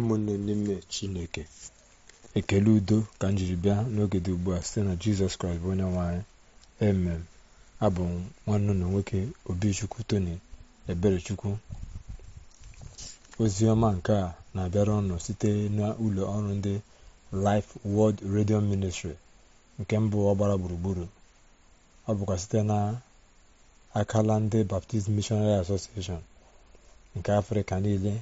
ụmụnne n'ime chineke ekele udo ka m jiri bịa n'oge dị ugbu a site na jizọs kraịst bụ onye nwanyị emem abụ m nwanne na nwoke obichukwu tony eberechukwu oziọma nke a na-abịara ọnụ site n'ụlọ ọrụ ndị Life World Radio Ministry nke mbụ ọgbara gburugburu ọ bụkwa site na akala ndị Baptist Missionary Association nke Afrịka niile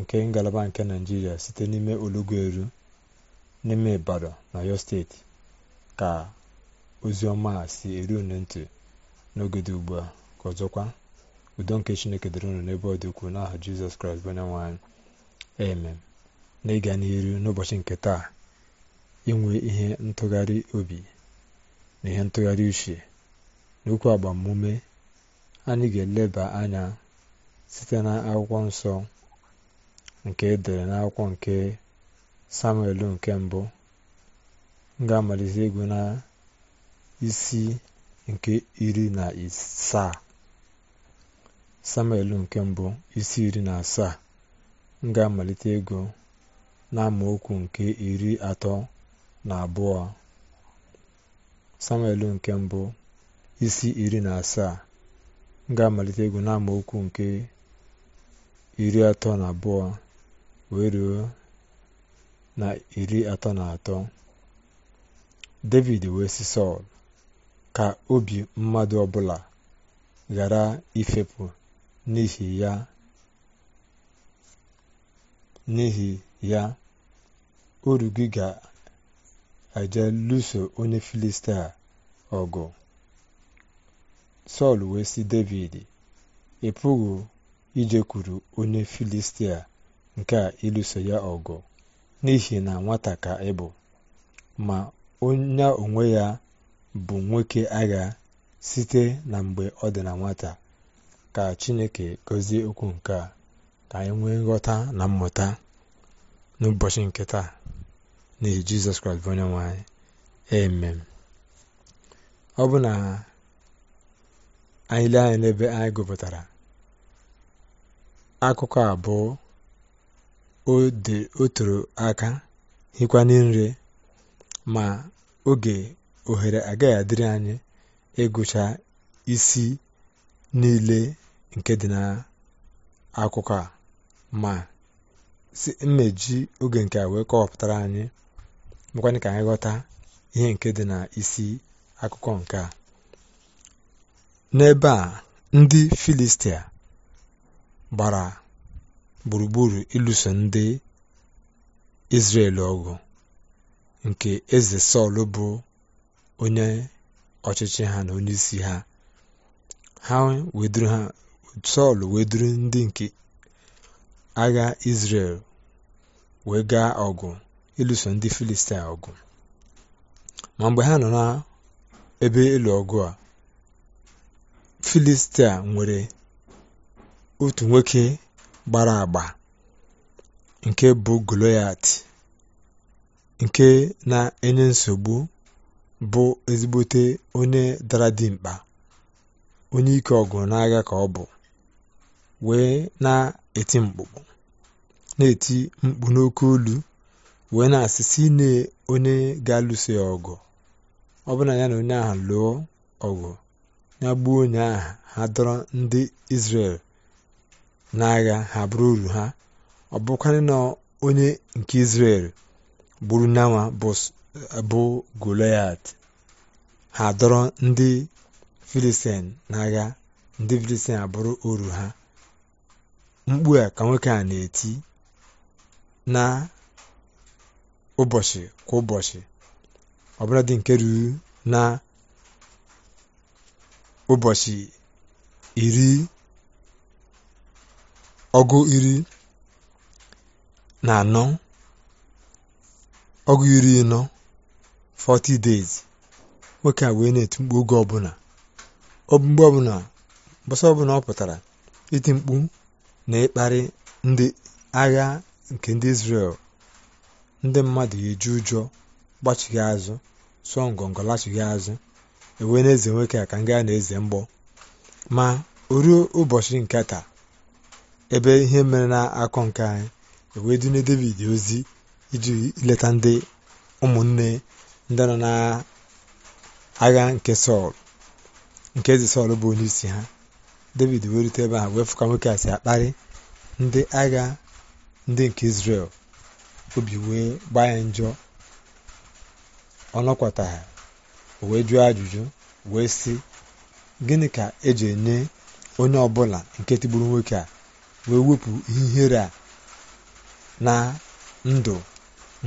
nke ngalaba nke naijiria site n'ime eru n'ime ibadan na yo steeti ka ozioma si eru unu n'oge dị ugbu a ka ọzọkwa udo nke chineke dịrị unu n'ebe ọ dị ukwuu n'aha jizọs kraịst bụ onye na anyị amen n'ịga n'iru n'ụbọchị nke taa inwe ihe ntụgharị obi na ihe ntụgharị uche n'okwu agbamume anyị ga-eleba anya site na akwụkwọ nsọ nke edere n'akwụkwọ nke samuel nke mbụ ga-amalite ịgụ na isi nke iri na asaa samuel nke mbụ isi iri na asaa ga-amalite ego na nke iri atọ na abụọ samuel nke mbụ isi iri na asaa ga-amalite ịgụ na nke iri atọ na abụọ wee ruo na iri atọ na atọ david wee si sọl ka obi mmadụ ọbụla ghara ifepụ n'ihi ya n'ihi ya oru gị ga-eje lụso onye filistia ọgụ sọl wee si david ị pụghị ijekwuru onye filistia nke a ịlụso ya ọgụ n'ihi na nwata ka ị bụ ma onye onwe ya bụ nwoke agha site na mgbe ọ dị na nwata ka Chineke gọzie okwu nke a ka anyị nwee nghọta na mmụta n'ụbọchị nke taa n'ihi Jizọs Kraịst bụ onye nwanyị emem ọ bụ na anyị lee anya n'ebe anyị gụpụtara akụkọ abụọ o toro aka hikwana nri ma oge ohere agaghị adịrị anyị ịgụcha isi niile nke dị akụkọ a ma si mmeji oge nke a wee kọwapụtara anyị mekwana ka anyị ghọta ihe nke dị na isi akụkọ nke a n'ebe a ndị filistia gbara gburugburu ịlụso ndị Izrel ọgụ nke eze Sọl bụ onye ọchịchị ha na onyeisi ha ha weduru weduru ndị nke agha Izrel wee gaa ọgụ ịlụso ndị Filistia ọgụ ma mgbe ha nọ na ebe ịlụ ọgụ a Filistia nwere otu nwoke gbara agba nke bụ Goloyat nke na-enye nsogbu bụ ezigbote onye dara mkpa onye ike ọgụ n'agha ka ọ bụ wee na-eti mkpụkpụ na-eti mkpu n'oke olu wee na-asị si na onye ga-alụso ya ọgụ ọ ya na onye ahụ lụọ ọgụ ya gbuo onye ahụ ha dọrọ ndị Izrel n'agha ha bụrụ uru ha ọ na onye nke Izrel gburu n'anwa bụ Goliat ha dọrọ ndị Filistin n'agha ndị Filistin abụrụ uru ha mkpu a ka nwoke a na-eti na ụbọchị kwa ụbọchị dị nke ruru na ụbọchị iri ọgụ iri na anọ ọgụ iri nọ 40 days nwoke a wee na-eti mkpu oge ọbụla mgbe ọbụla mbọsọ ọbụla ọ pụtara iti mkpu na ịkparị ndị agha nke ndị Israel ndị mmadụ eji ụjọ gbachighị azụ sụọ ngọngọ lachighị azụ ewee na-eze nwoke a ka nga na-eze mgbọ ma o ụbọchị nke taa ebe ihe mere na-akọ nke anyị ewee dunye david ozi iji leta ndị ụmụnne ndị nọ na agha nke sọl nke eze sọl bụ onye isi ha david wee rute ebe ha wee fụka nwoke a si akparị ndị agha ndị nke israel obi wee gbaa ya njọ ọnọkwata ha wee jụọ ajụjụ wee sị gịnị ka eji enye onye ọbụla nke tigburu nwoke a wee wepụ ihere a na ndụ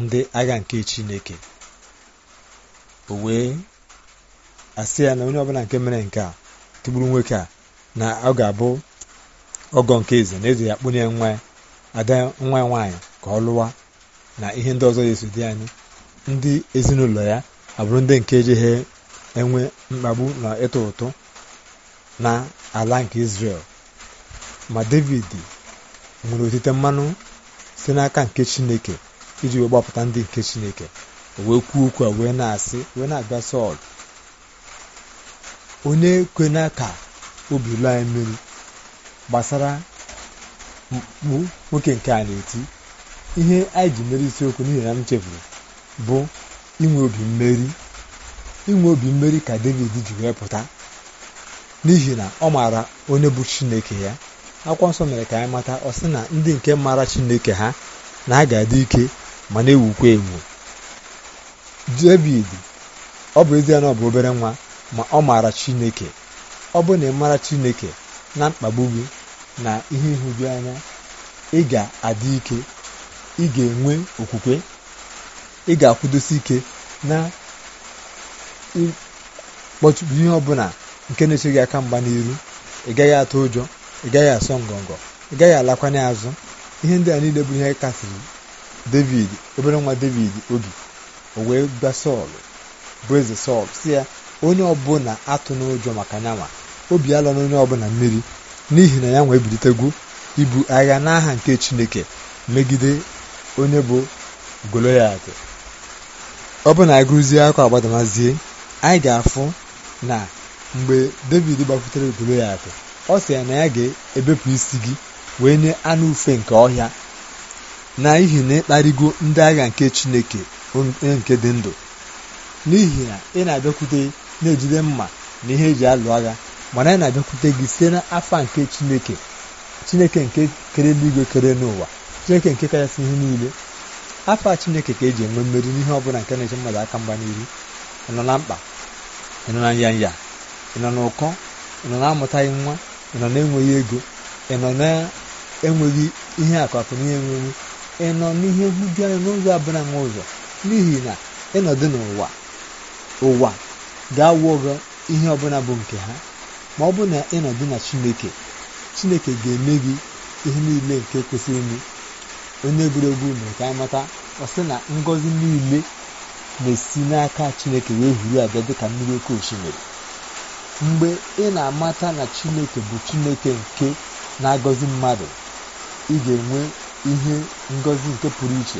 ndị agha nke chineke o wee asị ya na onye ọbụla nke mere nke a tụgburu nwoke a na ọ ga-abụ ọgọ nke eze na eze ya kpụnye nwa ada nwa ya nwaanyị ka ọ lụwa na ihe ndị ọzọ yesu dị anyị ndị ezinụlọ ya abụrụ ndị nke jeghe enwe mkpagbu na ịtụ ụtụ na ala nke Israel ma david nwere otite mmanụ site n'aka nke chineke iji wee gbapụta ndị nke chineke wee kwuo okwu a wee na-asị wee na-abịa sọl onye na ka obi lụọ anyị mmiri gbasara mkpu nwoke nke a na-eti ihe anyị ji mere isiokwu n'ihi na m chefuru bụ inwe obi mmeri inwe obi mmeri ka david ji wee pụta n'ihi na ọ maara onye bụ chineke ya akwụkwọ nsọ mere ka anyị mata ọ sị na ndị nke mara chineke ha na ha ga-adị ike ma na-ewukwa ewu david ọ bụ ezie na ọ bụ obere nwa ma ọ maara chineke ọ bụ na ị mara chineke na mkpagbu gị na ihe ịhụju anya ị ga-adị ike ị ga-enwe okwukwe ị ga-akwụdosi ike na ịkpọchụpụ ihe ọbụla nke na-eche gị aka mgba n'iru ị gaghị atụ ụjọ ị gaghị asọ ngọngọ ị gaghị alakwanye azụ ihe ndị a niile bụ ihe kasịrị david obere nwa david obi o wee gba sọl bụ eze sọl si ya onye ọbụla atụ n'ụjọ maka nyanwa obi alọ n'onye ọbụla mmiri n'ihi na ya nwa ebilitegwu ibu agha n'aha nke chineke megide onye bụ goloyat ọ bụ na agụzie akwa agbadamazie anyị ga-afụ na mgbe david gbakwutere goloyat ọ sị ya na ya ga-ebepụ isi gị wee nye anụ ufe nke ọhịa n'ihi na ịkparịgo ndị agha nke chineke onye nke dị ndụ n'ihi na ị na-abịakwute na-ejide mma na ihe eji alụ agha mana ị na-abịakwute gị site n'afọ nke chineke chineke nke kere n'igwe kere n'ụwa chineke nke kachasị ihe niile afa chineke ka eji enwe mmeri n'ihe ọbụla nke na-eche mmadụ aka mgba n'iru ị nọ na mkpa ị nọ na nyanya ị nọ n'ụkọ ị nọ na-amụtaghị nwa ị nọ na-enweghị ego ị nọ na-enweghị ihe akụakụ na ihe ị nọ n'ihe nhụju anya n'ụzọ abụla nwa ụzọ n'ihi na ịnọdụ n'ụwa ụwa ga-awọ gị ihe ọbụla bụ nke ha ma ọ bụ na ịnọdụ na chineke chineke ga-eme gị ihe niile nke kwesịrị ime onye egwuregwu mere ka anyị ọ ọsị na ngọzi niile na-esi n'aka chineke wee huru abịa dịka mmiri oke osimiri mgbe ị na-amata na chineke bụ chineke nke na-agọzi mmadụ ị ga-enwe ihe ngọzi nke pụrụ iche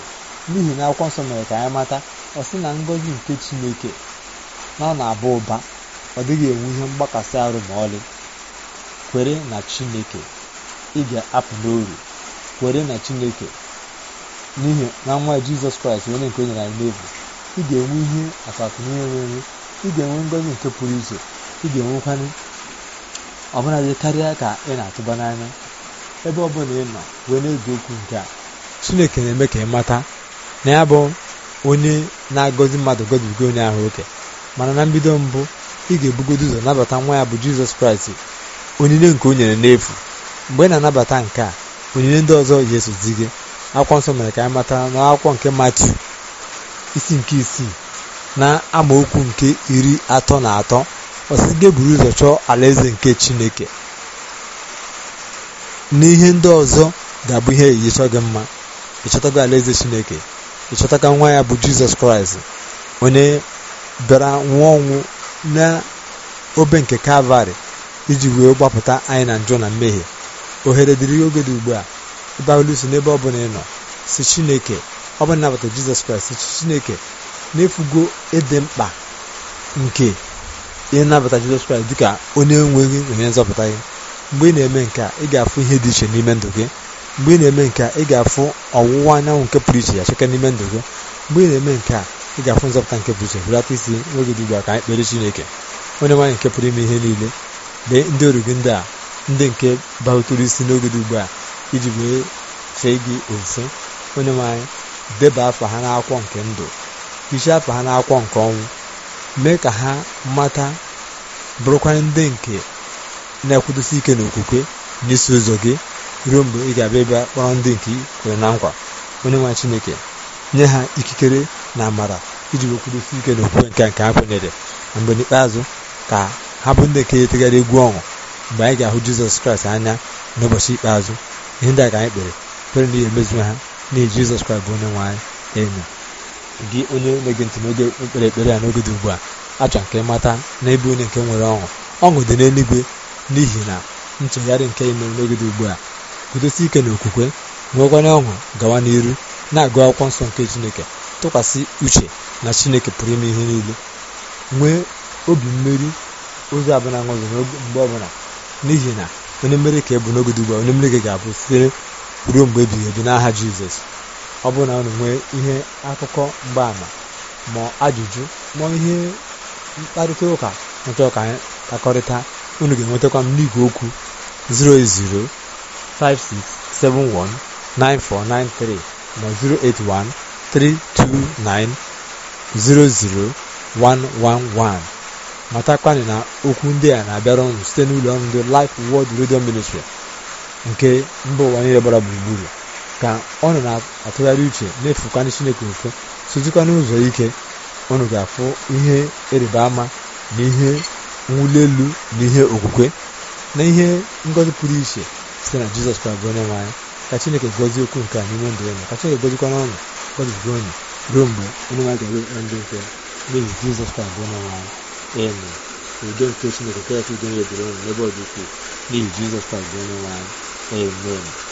n'ihi na akwụkwọ nsọ mere ka anyị mata ọ sị na ngọzi nke chineke na ọ na-aba ụba ọ dịghị enwe ihe mgbakasị arụ ma ọlị kwere na chineke ị ga-apụ n'oru kwere na chineke n'ihi na nwa jizọs kraịst onye nke o nyere anyị n'efu ị ga-enwe ihe akpatụ ihe nwere ị ga-enwe ngọzi nke pụrụ iche ị ga enwekwanye ọbụla karịa ka ị na-atụba n'anya ebe ọbụla ị nọ wee na-eji okwu nke a chineke na-eme ka ị mata na ya bụ onye na-agọzi mmadụ gọzibigo onye ahụ oke mana na mbido mbụ ị ga-ebugodo ụzọ nabata nwa ya bụ jizọs kraịst onyinye nke o nyere n'efu mgbe ị na-anabata nke a onyinye ndị ọzọ ga-eso gị akwụkwọ nsọ mere ka anyị matara na akwụkwọ nke matiu isi nke isii na amaokwu nke iri atọ na atọ ọsị gị buru ụzọ chọọ alaeze nke chineke n'ihe ndị ọzọ ga-abụ ihe chọọ gị mma ịchọtago alaeze chineke ịchọtaga nwa ya bụ jizọs kraịst onye bịara nwụọ ọnwụ na obe nke kalvarị iji wee gbapụta anyị na njọ na mmehie ohere dịrị oge dị ugbu a ịbawelụso n'ebe ọ bụla ị nọ si chineke ọ bụla nabata jizọs kraịst si chineke n'efugo ịdị mkpa nke ihe nnabata jizọs kraịst dịka onye nwe gị na onye nzọpụta gị mgbe ị na-eme nke a ị ga-afụ ihe dị iche n'ime ndụ gị mgbe ị na-eme nke a ị ga-afụ ọwụwa anyanwụ nke pụrụ iche ya cheke n'ime ndụ gị mgbe ị na-eme nke a ị ga-afụ nzọpụta nke pụrụ iche hụlata isi n'oge dị ugbu a ka anyị kpere chineke onye nwaanyị nke pụrụ ime ihe niile lee ndị ọrụ gị ndị a ndị nke bahụtụrụ isi n'oge dị ugbu a iji wee fee gị ofufe onye nwaanyị deba ha nke ndụ hichaa afa ha n'akwụkwọ nke ọnwụ mee ka ha mata bụrụkwa ndị nke na-ekwudosi ike n'okwukwe n'isi ụzọ gị ruo mgbe ị ga-abịa ebe kpọrọ ndị nke kwere na nkwa onye nwa chineke nye ha ikikere na amara iji wekwudosi ike n'okwukwe nke nke ha kwenyere na mgbe n'ikpeazụ ka ha bụ ndị nke etegharị egwu ọṅụ mgbe anyị ga-ahụ jizọs kraịst anya n'ụbọchị ikpeazụ ihe ndị a ka anyị kpere kpere na ihe emezu ha n'ihi jizọs kraịst bụ onye nwe anyị enyi gị onye na-ege ntị n'oge ekpere ekpere a n'oge dị ugbu a achọ nke ịmata n'ebe onye nke nwere ọṅụ ọṅụ dị n'eluigwe n'ihi na ntụgharị nke ime n'oge dị ugbu a gudosi ike na okwukwe nwekwara ọṅụ gawa n'iru na-agụ akwụkwọ nsọ nke chineke tụkwasị uche na chineke pụrụ ime ihe niile nwee obi mmeri ozi abụla ṅụzi mgbe ọbụla n'ihi na onye mmeri ka ebụ n'oge dị ugbu a onye mmeri gị ga-abụ site ruo mgbe ebighị ebi n'aha jizọs ọ bụrụ na unu nwee ihe akụkọ mgbaama ma ajụjụ ma ihe mkparịta ụka nchọọ ka anyị kakọrịta unu ga-enwetakwa m n'igwe okwu 08056719493 na 08132900111 matakwanị na okwu ndị a na-abịara ọnụ site n'ụlọ ọrụ ndị Life wọd redio Ministry nke mba ụwa niile gbara gburugburu ka nọ na-atụgharị uche na-efukwana chineke mfe sozikwa n'ụzọ ike ọnụ ga-afụ ihe ịrịba ama na ihe mwuli elu na ihe okwukwe na ihe ngọzi pụrụ iche site na jizọs kraịst bụ onye nwe ka chineke gọzie okwu nke a n'ime ndụ unu ka chineke gọzikwa n'ọṅụ gọzigo unu ruo mgbe onye nwanyị ga-eru ndị nke n'ihi jizọs kraịst bụ onye nwanyị anyị udo nke chineke kachasị udo ya ebiri unu n'ebe ọ dị ukwuu n'ihi jizọs kraịst onye